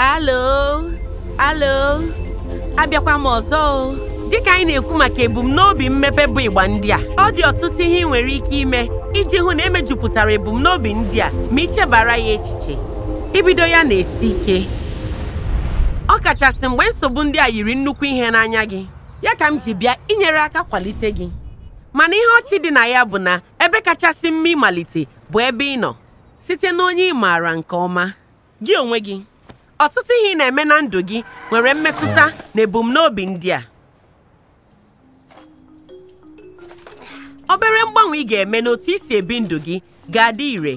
alo alo abịakwa m ọzọ dịka anyị na-ekwu maka ebumnobi mmepe bụ ịgba ndị a ọ dị ọtụtụ ihe ị nwere ike ime iji hụ na emejupụtara ebumnobi ndị a ma ichebara ya echiche ibido ya na-esi ike ọ kachasị mgbe nsogbu ndị a yiri nnukwu ihe n'anya gị ya ka m ji bịa inyere aka kwalite gị mana ihe ọchị dị na ya bụ na ebe kachasị mma ịmalite bụ ebe ị nọ site na onye ị maara nke ọma gị onwe gị ọtụtụ ihe ị na-eme na ndụ gị nwere mmetụta na ebumnobi ndị a obere mgbanwe ị ga-eme n'otu isi ebi ndụ gị ga-adị ire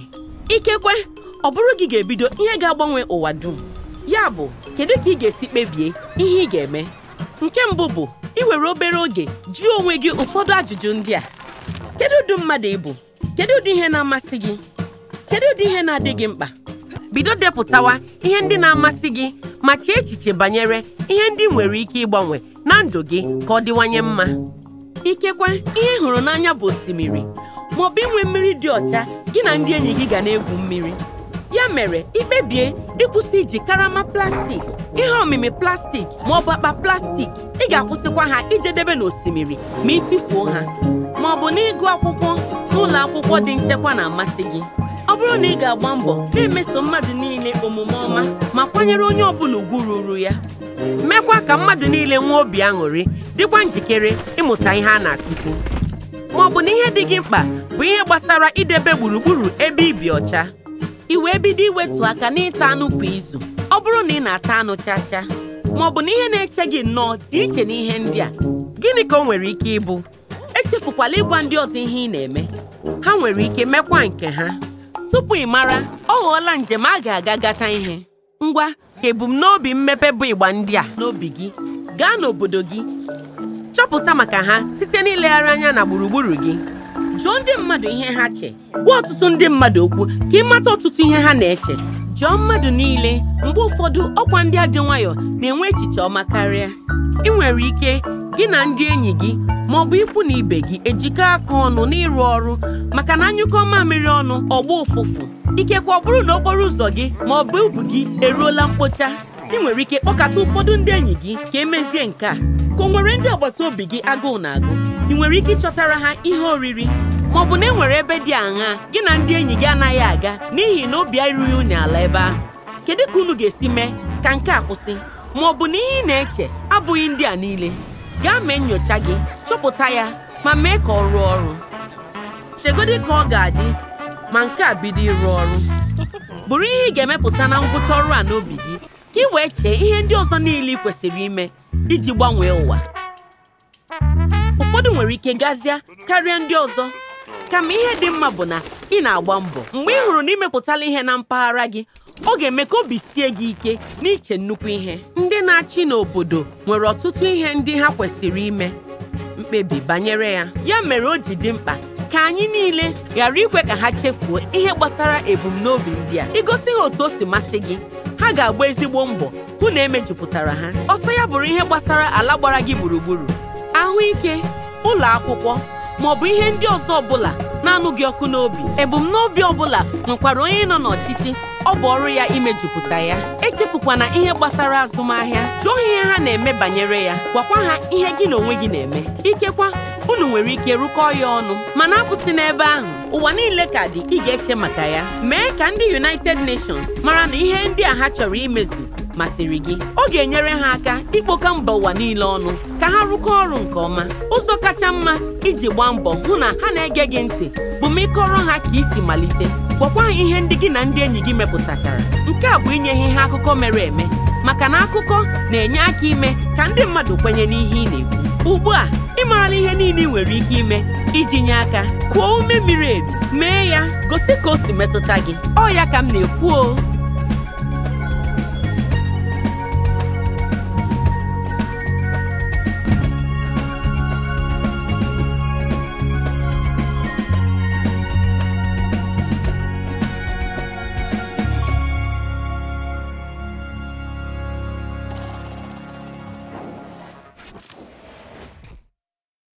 ikekwe ọ bụrụ gị ga-ebido ihe ga-agbanwe ụwa dum ya bụ kedu ka ị ga-esi kpebie ihe ị ga-eme nke mbụ bụ iwere obere oge jụọ onwe gị ụfọdụ ajụjụ ndị a kedu ụdị mmadụ ị bụ kedu ụdị ihe na-amasị gị kedu ụdị ihe na-adị gị mkpa bido depụtawa ihe ndị na-amasị gị ma chee echiche banyere ihe ndị nwere ike ịgbanwe na ndụ gị ka ọ dịwanye mma ikekwe ihe hụrụ n'anya bụ osimiri ma ọ bụ inwe mmiri dị ọcha gị na ndị enyi gị ga na-egwu mmiri ya mere ikpebie ịkwụsị iji karama plastik ihe omimi plastik ma ọ bụ akpa plastik ị ga-akwụsịkwa ha ijedebe n'osimiri ma ịtụfuo ha ma ọ bụ n'ịgụ akwụkwọ n'ụlọ akwụkwọ dị nchekwa na-amasị gị ọ bụrụ na ị ga-agba mbọ na-emeso mmadụ niile omume ọma ma kwanyere onye ọbụla ugwu ruru ya mekwa ka mmadụ niile nwee obi aṅụrị dịkwa njikere ịmụta ihe a na-akụzi ma ọ bụ na ihe dị gị mkpa bụ ihe gbasara idebe gburugburu ebe ibi ọcha i wee bido iwetu aka n'ịta anụ kwa izu ọ bụrụ na ị na-ata anụ chacha ma ọ bụ na ihe na-eche gị nnọọ dị iche na ihe ndị a gịnị ka ọ nwere ike ịbụ echefukwala ịgwa ndị ọzọ ihe ị na-eme ha nwere ike mekwa nke ha tupu ị mara ọ ghọọla njem a ga-aga gata ihe ngwa ka ebumnobi mmepe bụ ịgba ndị a n'obi gị gaa n'obodo gị chọpụta maka ha site n'ilegharị anya na gburugburu gị jụọ ndị mmadụ ihe ha che gwa ọtụtụ ndị mmadụ okwu ka ị mata ọtụtụ ihe ha na-eche jụọ mmadụ niile mgbe ụfọdụ ọkwa ndị adị nwayọọ na-enwe echiche ọma karịa ị nwere ike gị na ndị enyi gị ma ọ bụ ikwu na ibe gị ejikọ aka ọnụ n'ịrụ ọrụ maka na anyụkọ mamịrị ọnụ ọgba ụfụfụ ikekwe ọ bụrụ na okporo ụzọ gị ma ọ bụ ubu gị eruola mkpocha ị nwere ike kpọkata ụfọdụ ndị enyi gị ka emezie nke a ka o nwere ndị agbata obi gị agụụ na agụ ị nwere ike ịchọtara ha ihe oriri ma ọ bụ na e nwere ebe dị aṅa gị na ndị enyi gị anaghị aga n'ihi na obi erughị unu ala ebe ahụ kedu ka unu ga-esi mee ka nke a kwụsị ma ọ bụ na ihe ị na-eche abụghị ndị a niile gaa mee nnyocha gị chọpụta ya ma mee ka ọ rụọ ọrụ chegodị ka ọ ga-adị ma nke a bido ịrụ ọrụ bụrụ ihe ị ga-emepụta na ngwụcha ọrụ a n'obi gị ka ị wee chee ihe ndị ọzọ niile ị kwesịrị ime iji gbanwee ụwa ụfọdụ nwere ike gazie karịa ndị ọzọ kama ihe dị mma bụ na ị na-agba mbọ mgbe ị hụrụ na imepụtala ihe na mpaghara gị ọ ga-eme ka obi sie gị ike n'iche nnukwu ihe ndị na-achị n'obodo nwere ọtụtụ ihe ndị ha kwesịrị ime mkpebi banyere ya ya mere o ji dị mkpa ka anyị niile ghara ikwe ka ha chefuo ihe gbasara ebumnobi ndị a igosi ha otu o si masị gị ha ga-agba ezigbo mbọ hụ na emejupụtara ha ọsọ ya bụrụ ihe gbasara ala gbara gị gburugburu ahụike ụlọ akwụkwọ bụ ihe ndị ọzọ ọbụla na-anụghị ọkụ n'obi ebumnobi ọbụla nwekwara onye nọ n'ọchịchị ọ bụ ọrụ ya imejupụta ya echefukwana ihe gbasara azụmahịa jụọ ihe ha na-eme banyere ya gwakwa ha ihe gị na onwe gị na-eme ikekwa unu nwere ike rụkọọ ya ọnụ mana akwụsị n'ebe ahụ ụwa niile ka dị ị ga-eche maka ya mee ka ndị United Nations mara na ihe ndị a ha chọrọ imezu masịrị gị ọ ga-enyere ha aka ikpokọ mba ụwa niile ọnụ ka ha rụkọ ọrụ nke ọma ụzọ kacha mma iji gbaa mbọ hụ na ha na-ege gị ntị bụ ma ịkọrọ ha ka isi malite gwakwa ha ihe ndị gị na ndị enyi gị mepụtachara nke a bụ inye ha ihe akụkọ mere eme maka na akụkọ na-enye aka ime ka ndị mmadụ kwenye n'ihe ị na-ekwu ugbu a ị marala ihe niile ị nwere ike ime iji nye aka kwuo ume miri emi mee ya gosi ka o si metụta gị ọ ya ka m na-ekwu o